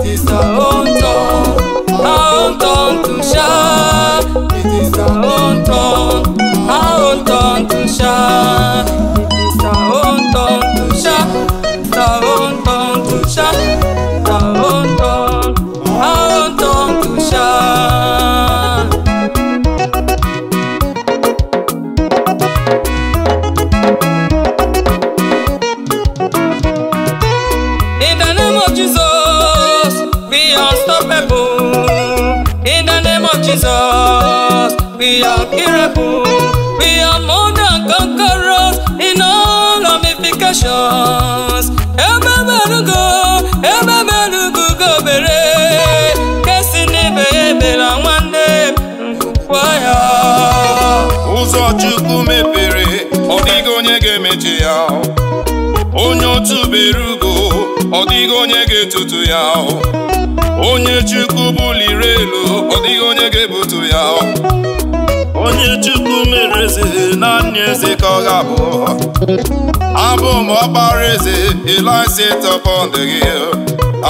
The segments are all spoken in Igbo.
it is Jesus, we are miracle, we are more than conquerors in all ramifications. Ebe belugo, ebe belugo go bere, kesi ni bebe la nwanne mkwaya. Ụzọ Chukwu mepere, ọ dịghị onye ga-emechi ya, onye otu beru ọ dịghị onye ga-etutu ya onye chukwu buliri elu ọ dịghị onye ga-ebutu ya onye chukwu mere eze naanị eze ka ọ ga-abụ abụ m ọkpara eze elise tọpọnd gị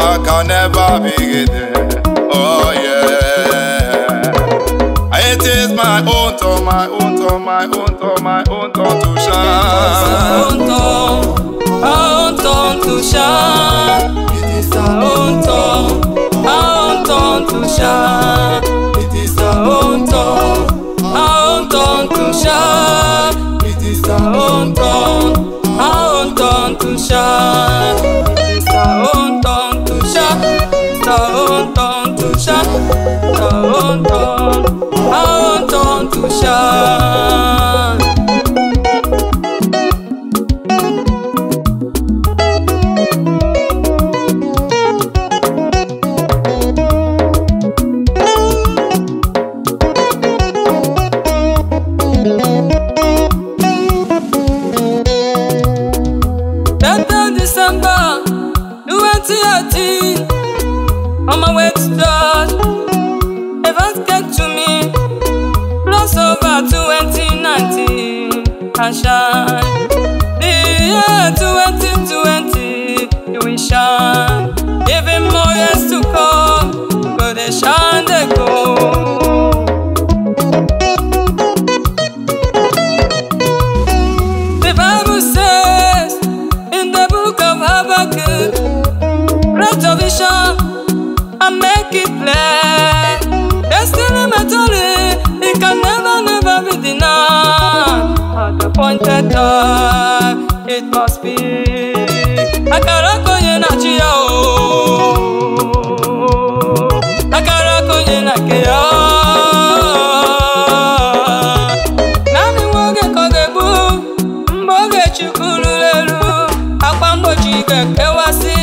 aka n'ebe abịghịde oye It is my own to my own to my own to my own to, to shine. My own a ó tàn tù It is our own turn, our own to shine. On my way to church, heaven's came to me. Plus over 2019, and shine. The year 2020, you will shine. better it must be akara konye na chia o akara konye na ke ya naanị nwa oge ka ọ lelu. egbu mgbe kewasi, na ruru eru akwa mgbochi ga-ekewasị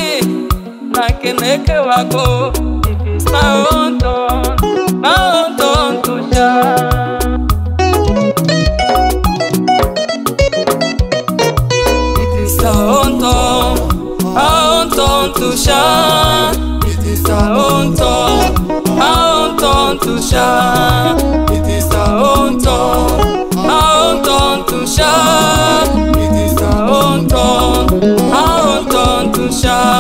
Tusha. It is our own turn, our own turn to shine. It is our own turn, our own turn to shine.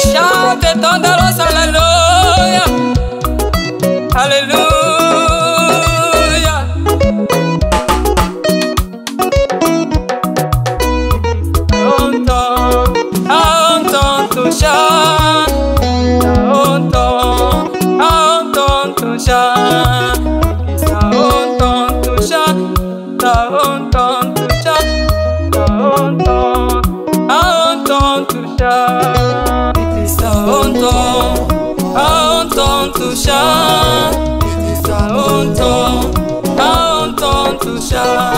shout et thunderous hallelujah. Hallelujah. On ton, on ton to shine. On ton, on ton to shine. It's Onton, Onton to shine. It is a Onton, Onton to shine.